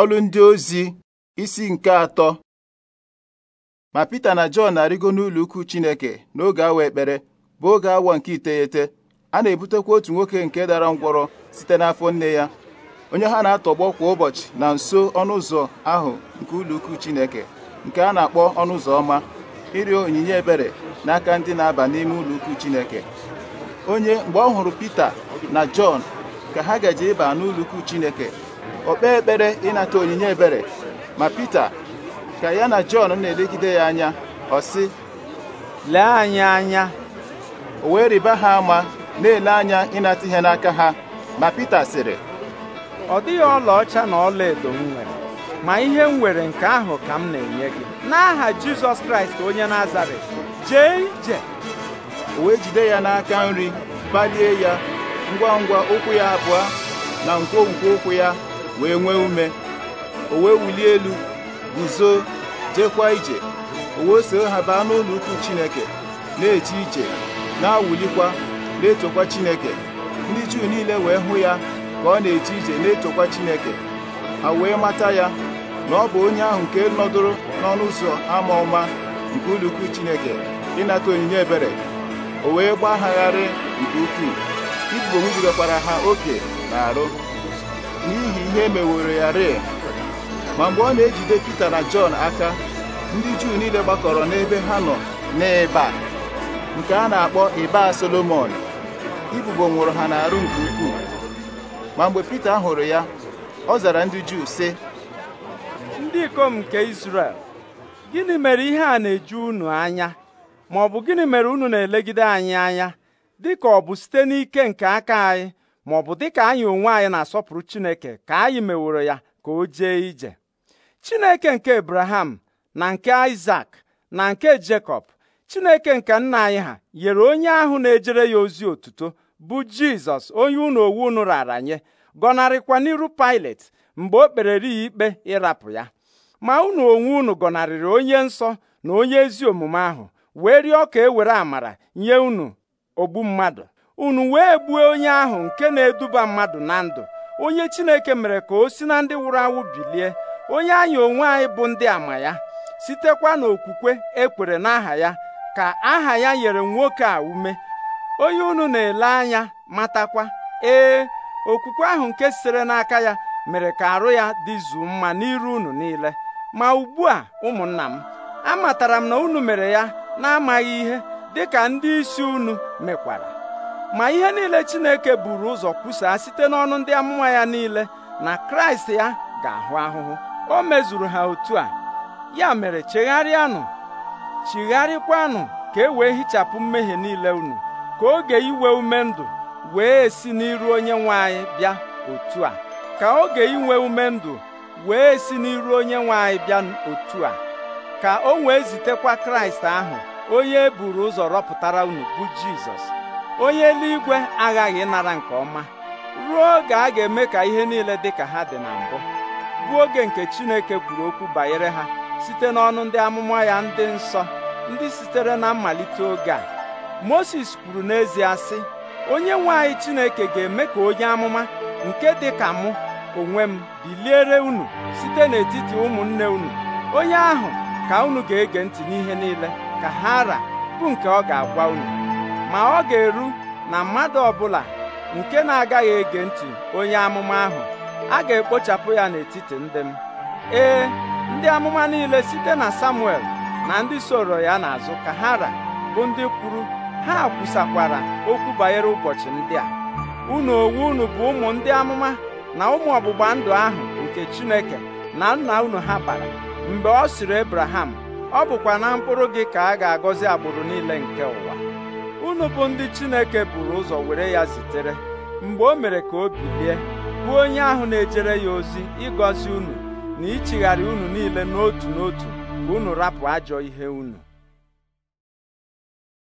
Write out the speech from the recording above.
ọlụ ndị ozi isi nke atọ ma Pita na Jọn na-arịgo n'ụlọ ukwu Chineke n'oge awa ekpere bụ oge awa nke iteghete a na-ebutekwa otu nwoke nke dara ngwọrọ site n'afọ nne ya onye ha na-atọgbọ kwa ụbọchị na nso ọnụ ụzọ ahụ nke ụlọ ukwu Chineke nke a na-akpọ ọnụ ụzọ ọma ịrịọ onyinye ebere n'aka ndị na-aba n'ime ụlọ ukwu Chineke onye mgbe ọ hụrụ Pita na Jọn ka ha gaje ịba n'ụlọ ukwu Chineke o kpee ekpere ịnata onyinye ebere ma Pita ka ya na Jọn na-elegide ya anya ọ sị lee anyị anya o wee rịba ha ama na-ele anya ịnata ihe n'aka ha ma Pita sịrị ọ dịghị ọlaọcha na ọlaedo m nwere ma ihe m nwere nke ahụ ka m na-enye gị n'aha Jizọs Kraịst onye Nazaret jee ije o wee jide ya n'aka nri balie ya ngwa ngwa ụkwụ ya abụọ na nkwonkwo ụkwụ ya wee nwee ume o wee wulie elu guzo jekwa ije o wee soo ha baa n'ụlọ ukwu Chineke na-eche ije na-awụlikwa na-etokwa Chineke ndị Juu niile wee hụ ya ka ọ na-eche ije na-etokwa Chineke ha wee mata ya na ọ bụ onye ahụ nke nọdụrụ n'ọnụ ụzọ ama ọma nke ụlọ ukwu Chineke ịnata onyinye ebere o wee gbagharị nke ukwuu ibubo nwubigakwara ha oke na arụ n'ihi ihe meworo ya rịị ma mgbe ọ na-ejide Pita na Jọn aka ndị Juu niile gbakọrọ n'ebe ha nọ n'ịba nke a na-akpọ ịba Solomon ibubo nwụrụ ha n'arụ nke ukwuu ma mgbe Pita hụrụ ya ọ zara ndị Juu sị ndị ikom nke Izrel gịnị mere ihe a na-eju unu anya ma ọ bụ gịnị mere unu na-elegide anyị anya dị ka ọ bụ site n'ike nke aka anyị ma ọ bụ dịka anyị onwe anyị na-asọpụrụ Chineke ka anyị meworo ya ka o jee ije Chineke nke ebraham na nke Isak na nke Jekọb Chineke nke nna anyị ha nyere onye ahụ na-ejere ya ozi otuto bụ Jizọs onye unu owu unu rara nye gọnarịkwa n'iru Pilet mgbe o kperere ya ikpe ịrapụ ya ma unu onwe unu gọnarịrị onye nsọ na onye ezi omume ahụ wee rịọ ka e were amara nye unu ogbu mmadụ unu wee gbuo onye ahụ nke na-eduba mmadụ na ndụ onye Chineke mere ka o si na ndị nwụrụ anwụ bilie onye anyị onwe anyị bụ ndị ama ya sitekwa n'okwukwe ekwere n'aha ya ka aha ya nyere nwoke a ume onye unu na-ele anya matakwa ee okwukwe ahụ nke sitere n'aka ya mere ka arụ ya dịzuo mma n'iru unu niile ma ugbu a ụmụnna m amatara m na unu mere ya na-amaghị ihe dịka ndị isi unu mekwara ma ihe niile Chineke buru ụzọ kwusaa site n'ọnụ ndị amụma ya niile na Kraịst ya ga-ahụ ahụhụ o mezuru ha otu a ya mere chegharịanụ chigharịkwanụ ka e wee hichapụ mmehie niile unu ka oge iwe ume ndụ wee si n'iru onye nwe anyị bịa otu a ka oge inwe ume ndụ wee si n'iru onye nwe anyị bịa otu a ka o wee zitekwa Kraịst ahụ onye e buru ụzọ rọpụtara unu bụ Jizọs onye eluigwe aghaghị ịnara nke ọma ruo oge a ga-eme ka ihe niile dị ka ha dị na mbụ bụ oge nke Chineke kwuru okwu banyere ha site n'ọnụ ndị amụma ya ndị nsọ ndị sitere na mmalite oge a Moses kwuru n'ezie sị onye nwe anyị Chineke ga-eme ka onye amụma nke dị ka mụ onwe m biliere unu site n'etiti ụmụnne unu onye ahụ ka unu ga-ege ntị n'ihe niile ka ha ra bụ nke ọ ga-agwa unu ma ọ ga-eru na mmadụ ọbụla nke na-agaghị ege ntị onye amụma ahụ a ga-ekpochapụ ya n'etiti ndị m ee ndị amụma niile site na Samuel na ndị soro ya n'azụ ka ha ra bụ ndị kwuru ha kwusakwara okwu banyere ụbọchị ndị a unu onwe unu bụ ụmụ ndị amụma na ụmụ ọgbụgba ndụ ahụ nke Chineke na nna unu ha bara mgbe ọ sịrị Abraham ọ bụkwa na mkpụrụ gị ka a ga-agọzi agbụrụ niile nke ụwa unu bụ ndị Chineke buru ụzọ were ya zitere mgbe o mere ka o bilie bụ onye ahụ na-ejere ya ozi ịgọzi unu na ichigharị unu niile n'otu n'otu ka unu rapụ ajọ ihe unu